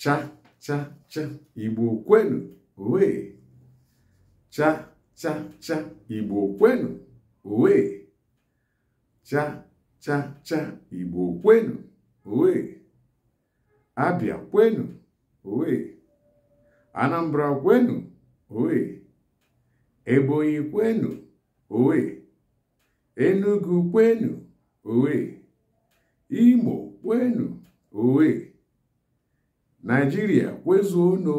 cha cha cha igbo kwenu wee. cha cha cha igbo kwenu wee. cha cha cha igbo kwenu wee. abịa kwenu wee. anambra kwenu wee. ebonyi kwenu wee. enugu kwenu wee. imo kwenu wee. Nigeria, Wezuno.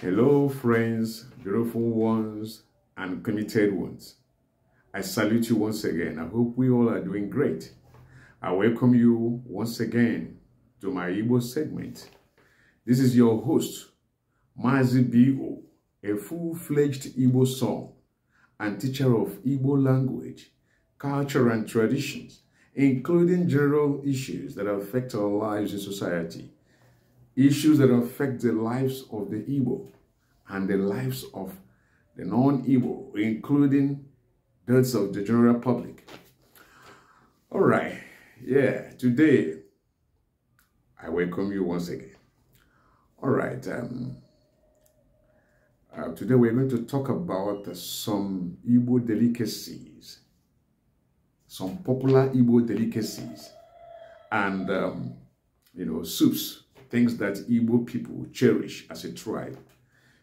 Hello, friends, beautiful ones, and committed ones. I salute you once again. I hope we all are doing great. I welcome you once again to my Igbo segment. This is your host, Mazi Bigo, a full-fledged Igbo song and teacher of Igbo language, culture and traditions including general issues that affect our lives in society, issues that affect the lives of the Igbo and the lives of the non-Igbo, including those of the general public. All right, yeah, today I welcome you once again. All right, um, uh, today we're going to talk about uh, some Igbo delicacies some popular Igbo delicacies and, um, you know, soups, things that Igbo people cherish as a tribe.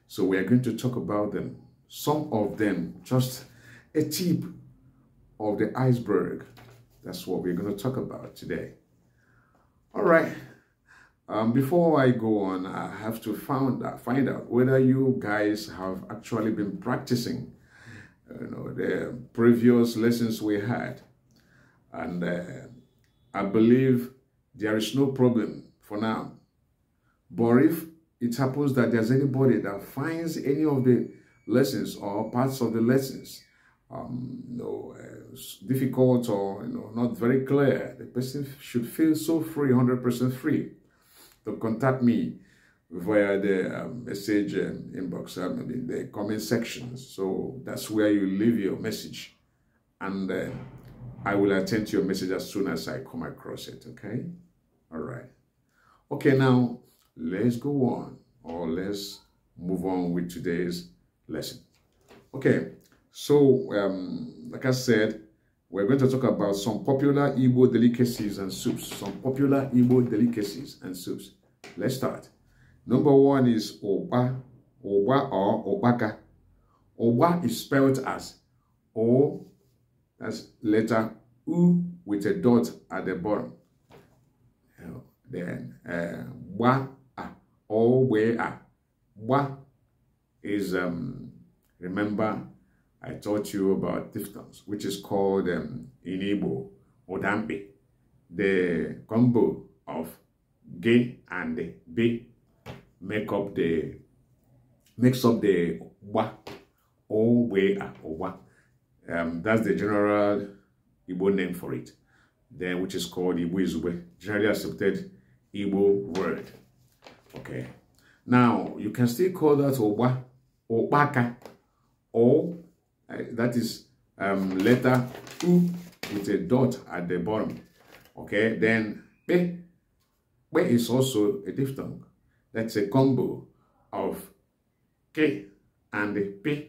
So we are going to talk about them. Some of them, just a tip of the iceberg. That's what we're going to talk about today. All right. Um, before I go on, I have to find out, find out whether you guys have actually been practicing you know, the previous lessons we had. And uh, I believe there is no problem for now. But if it happens that there's anybody that finds any of the lessons or parts of the lessons um, you know, uh, difficult or you know, not very clear, the person should feel so free, 100% free to contact me via the um, message um, inbox, or um, in the comment section. So that's where you leave your message. And uh, I will attend to your message as soon as I come across it, okay? All right. Okay, now let's go on or let's move on with today's lesson. Okay, so um, like I said, we're going to talk about some popular Igbo delicacies and soups. Some popular Igbo delicacies and soups. Let's start. Number one is Oba, Oba or Obaka. Oba is spelled as O that's letter U with a dot at the bottom. Then uh, wa or where a wa is um, remember I taught you about diphthongs, which is called um, in Igbo the combo of G and b make up the makes up the wa or where a or wa. Um, that's the general Igbo name for it, then which is called Igbo Izube, generally accepted Igbo word. Okay. Now, you can still call that Oba, Obaka, O. uh, that is um, letter U with a dot at the bottom. Okay, then Be, Be is also a diphthong. That's a combo of K and P,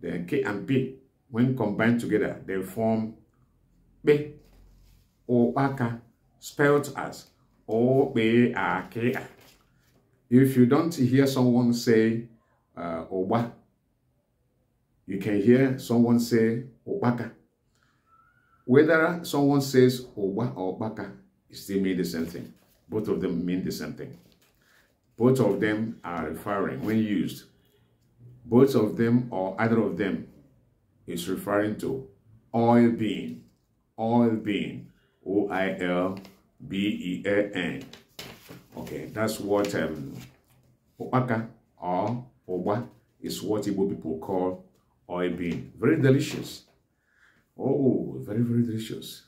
then K and P when combined together, they form be or aka, spelled as "obaka." If you don't hear someone say uh, oba, you can hear someone say obaka. Whether someone says oba or baka, it still means the same thing. Both of them mean the same thing. Both of them are referring when used. Both of them or either of them is referring to oil bean, oil bean, O I L B E A N. Okay, that's what um, Opaka or Oba is what Igbo people call oil bean. Very delicious. Oh, very, very delicious.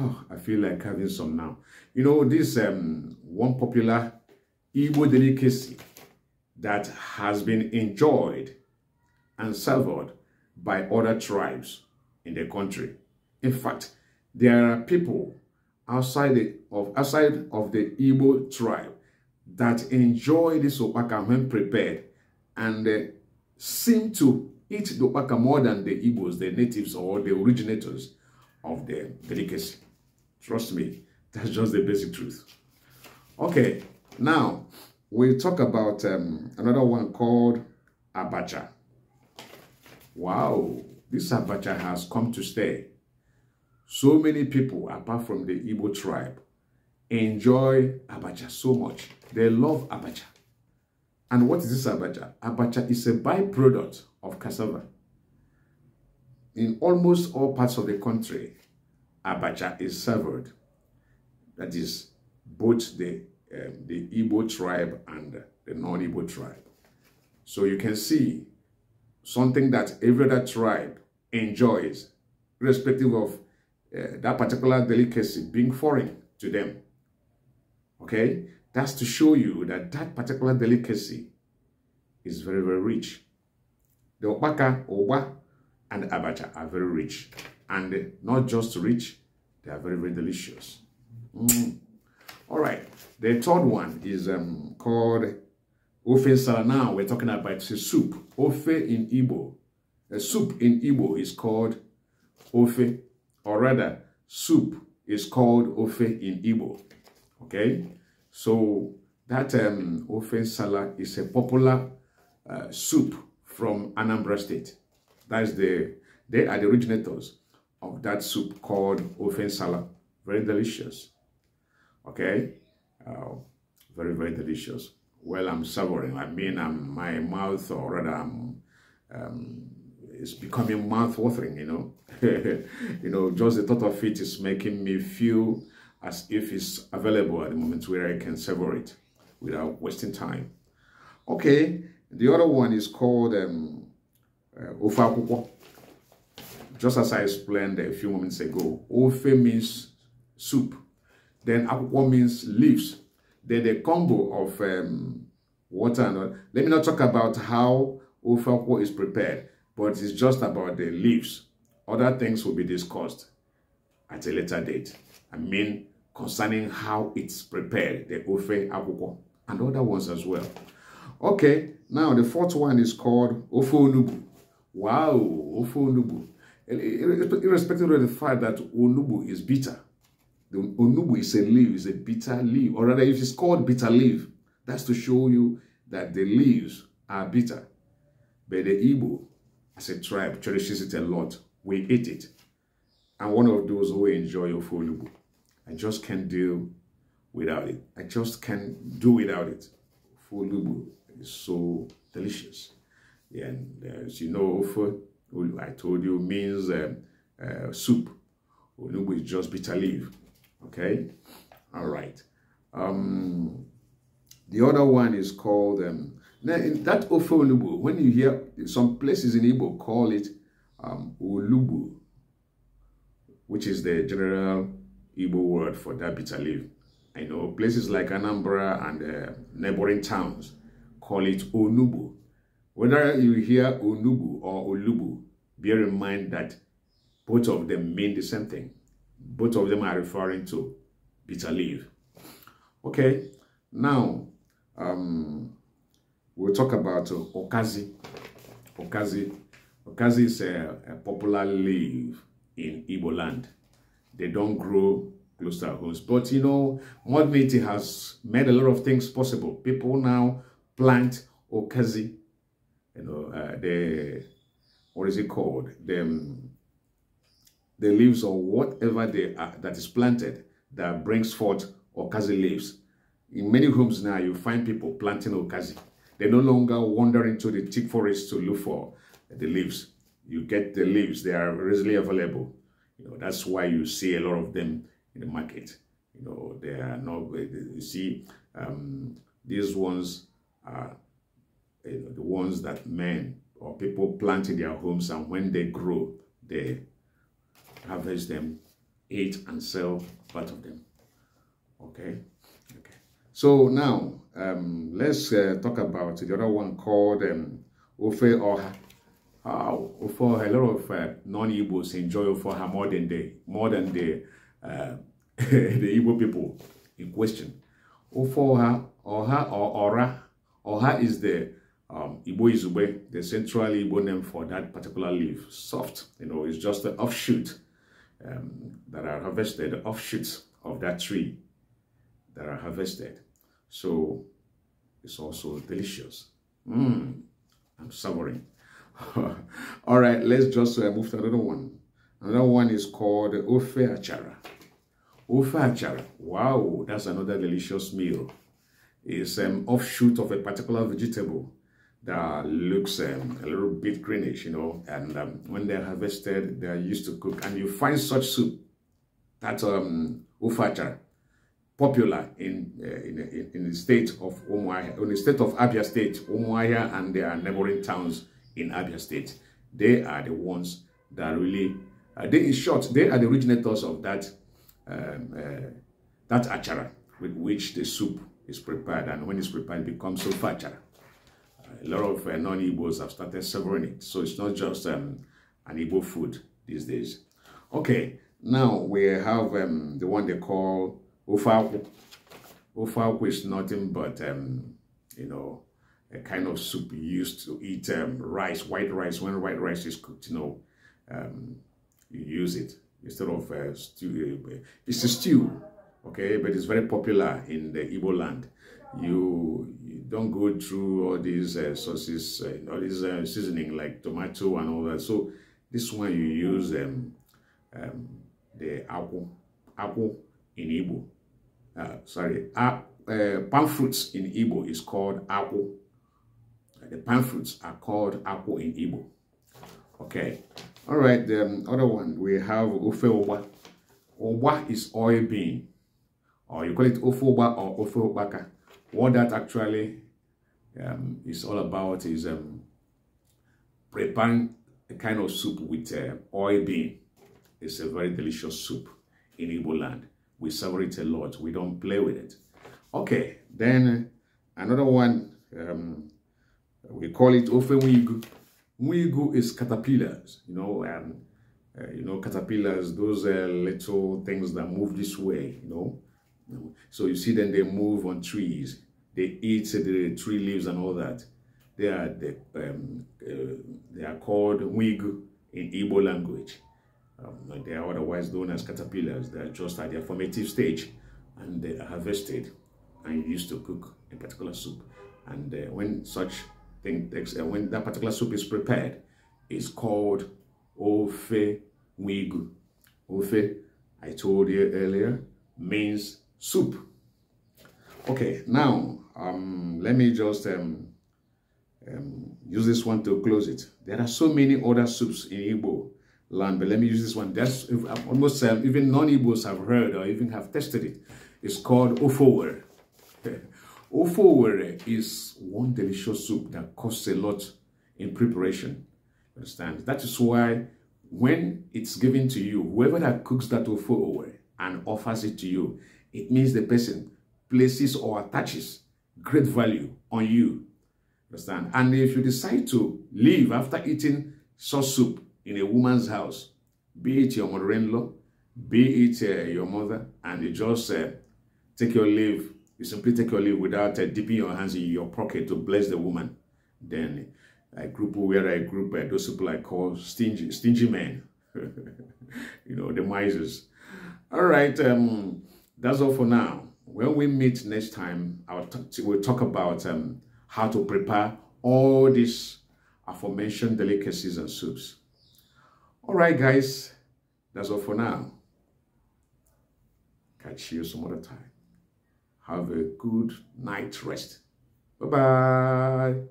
Oh, I feel like having some now. You know, this um, one popular Igbo delicacy that has been enjoyed and savored by other tribes in the country. In fact, there are people outside the, of outside of the Igbo tribe that enjoy this opaka when prepared and uh, seem to eat the opaka more than the Igbos, the natives or the originators of the delicacy. Trust me, that's just the basic truth. Okay, now we'll talk about um, another one called abacha. Wow, this Abacha has come to stay. So many people, apart from the Igbo tribe, enjoy Abacha so much. They love Abacha. And what is this Abacha? Abacha is a byproduct of cassava. In almost all parts of the country, Abacha is served. That is both the, um, the Igbo tribe and the non-Igbo tribe. So you can see something that every other tribe enjoys, irrespective of uh, that particular delicacy being foreign to them. Okay? That's to show you that that particular delicacy is very, very rich. The opaka, oba and abacha are very rich. And not just rich, they are very, very delicious. Mm. All right. The third one is um, called Ofe sala. now, we're talking about it's a soup. Ofe in Igbo. A soup in Igbo is called Ofe, or rather, soup is called Ofe in Igbo. Okay? So, that um, Ofe is a popular uh, soup from Anambra State. That's the, they are the originators of that soup called Ofe sala. Very delicious. Okay? Uh, very, very delicious well, I'm suffering. I mean, I'm, my mouth, or rather, I'm, um, it's becoming mouth-watering, you know. you know, just the thought of it is making me feel as if it's available at the moment where I can sever it without wasting time. Okay, the other one is called um, uh, Just as I explained a few moments ago, Ofe means soup. Then Akwukwo means leaves the combo of um, water and all. Let me not talk about how ofakwo is prepared, but it's just about the leaves. Other things will be discussed at a later date. I mean, concerning how it's prepared, the ofe akwukwo, and other ones as well. Okay, now the fourth one is called ofe onubu. Wow, ofe onubu. Irrespective of the fact that onubu is bitter, the onubu is a leaf, is a bitter leaf. Or rather, if it's called bitter leaf, that's to show you that the leaves are bitter. But the Igbo, as a tribe, cherishes it a lot. We eat it. I'm one of those who enjoy ofunubu. I just can't deal without it. I just can't do without it. Ofunubu is so delicious. And uh, as you know, I told you, means um, uh, soup. Onubu is just bitter leaf. Okay? All right. Um, the other one is called, um, that Ofe Olubu, when you hear some places in Igbo call it um, Olubu, which is the general Igbo word for that bitter leaf. I know places like Anambra and uh, neighboring towns call it Onubu. Whether you hear Onubu or Olubu, bear in mind that both of them mean the same thing both of them are referring to bitter leaf. Okay, now um, we'll talk about uh, okazi. Okazi. Okazi is a, a popular leaf in Ibo land. They don't grow close to our homes. But you know, modernity has made a lot of things possible. People now plant okazi. You know, uh, the, what is it called? them. um, the leaves or whatever they are that is planted that brings forth okazi leaves. In many homes now, you find people planting okazi. They no longer wander into the thick forest to look for the leaves. You get the leaves, they are readily available. You know, that's why you see a lot of them in the market. You know, they are not, you see, um, these ones are you know, the ones that men or people plant in their homes and when they grow, they harvest them, eat and sell part of them. Okay? Okay. So now, um, let's uh, talk about the other one called um, Ofe Oha. Uh, Ofe, a lot of uh, non ibos enjoy Ofe more than they more than the, uh, the Igbo people in question. Ofe Oha, Oha or Ora, Oha is the um, Igbo Izube, the central Igbo name for that particular leaf. Soft, you know, it's just an offshoot um, that are harvested, offshoots of that tree that are harvested. So it's also delicious. Mm, I'm savoring. All right, let's just uh, move to another one. Another one is called Ofe Achara. Ofe Achara, wow, that's another delicious meal. It's an um, offshoot of a particular vegetable that looks um, a little bit greenish, you know, and um, when they're harvested, they're used to cook. And you find such soup, that um, ufacha, popular in, uh, in, in the state of Umuahia, in the state of Abia State, Umuahia and their neighboring towns in Abia State. They are the ones that really, uh, they, in short, they are the originators of that, um, uh, that achara with which the soup is prepared. And when it's prepared, it becomes ufacha a lot of uh, non-Igbos have started serving it. So it's not just um, an Igbo food these days. Okay, now we have um, the one they call Ofalku. Ofalku is nothing but, um, you know, a kind of soup used to eat um, rice, white rice. When white rice is cooked, you know, um, you use it instead of uh, stew. Uh, it's a stew, okay? But it's very popular in the Igbo land you, you don't go through all these uh, sauces, uh, all these uh, seasoning like tomato and all that. So this one you use um, um, the apple, apple in Igbo. Uh, sorry, uh, uh, palm fruits in Igbo is called apple. Uh, the palm fruits are called apple in Igbo. Okay. All right, the um, other one, we have ofe oba. Oba is oil bean. Or you call it ofe oba or ofe obaka. What that actually um, is all about is um, preparing a kind of soup with uh, oil bean. It's a very delicious soup in Igbo land. We savor it a lot. We don't play with it. Okay, then another one, um, we call it ofenwigu. Mwigu is caterpillars, you know, and um, uh, you know, caterpillars, those uh, little things that move this way, you know. So you see them, they move on trees. They eat the tree leaves and all that. They are, the, um, uh, they are called wig in Igbo language. Um, they are otherwise known as caterpillars. They are just at their formative stage and they are harvested and used to cook a particular soup. And uh, when such thing takes, uh, when that particular soup is prepared, it's called ofe wigu. Ofe, I told you earlier, means soup. Okay, now um, let me just um, um, use this one to close it. There are so many other soups in Igbo land, but let me use this one. That's almost um, even non-Igbos have heard or even have tested it. It's called ofowere. ofowere is one delicious soup that costs a lot in preparation. Understand? That is why when it's given to you, whoever that cooks that ofowere and offers it to you, it means the person places or attaches great value on you. Understand? And if you decide to leave after eating sauce soup in a woman's house, be it your mother-in-law, be it uh, your mother, and you just uh, take your leave, you simply take your leave without uh, dipping your hands in your pocket to bless the woman, then I group where I group uh, those people I call stingy, stingy men, you know, the misers. All right, um, that's all for now. When we meet next time, we'll talk about um, how to prepare all these aforementioned delicacies and soups. All right, guys, that's all for now. Catch you some other time. Have a good night rest. Bye-bye.